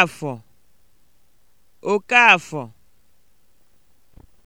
Okafọ Okafọ